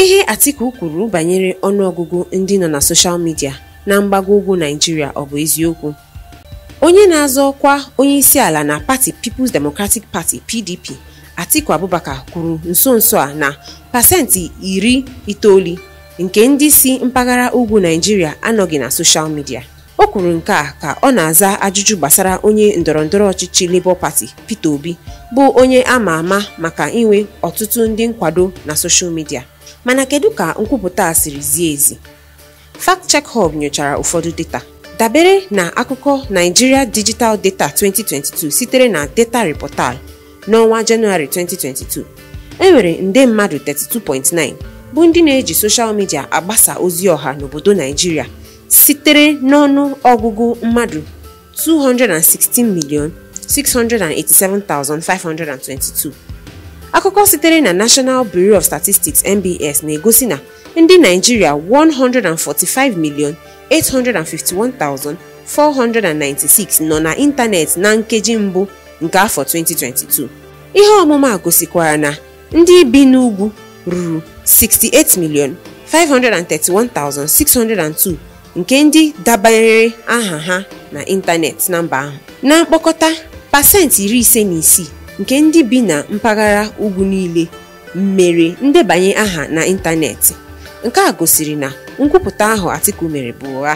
ihe Atiku kwuru banyere ọnụọgụgụ ndị nọ na soshal midia na mgbago ugwu naijiria ọ bụ eziokwu onye na-azọ ọkwa onye isi ala na pati People's Democratic Party PDP Atiku Abubakar kwuru nso nso a na pasentị iri itoolu nke ndị si mpaghara ugwu naijiria anọghị na soshal midia o kwuru nke a ka ọ na-aza ajụjụ gbasara onye ndọrọndọrọ ọchịchị Labour Party Peter Obi bụ onye ama ama maka inwe ọtụtụ ndị nkwado na soshal midia mana kedu ka nkwupụta a siri zie ezi fact check hub nyochara ụfọdụ data dabere na akụkọ Nigeria Digital Data 2022 sitere na data reportal n'ọnwa Jenụwarị 2022 enwere nde mmadụ 32.9 bụ ndị na-eji soshal midia agbasa ozi ọha n'obodo Naijiria sitere n'ọnụ ọgụgụ mmadụ 216 million 687,522 akụkọ sitere na National Bureau of Statistics NBS na-egosi na ndị Naijiria 145,851,496 nọ na ịntanetị na nkeji mbụ nke afọ 2022 ihe ọmụma gosikwara na ndị bi n'ugwu ruru 68 68,531,602 nke ndị dabanyere aha ha na ịntanetị na mba ahụ na mkpokọta pasentị iri ise na isii nke ndị bi na mpaghara ugwu niile mere ndebanye aha n'ịntanetị nke a gosiri na nkwupụta ahụ Atiku mere bụ ụgha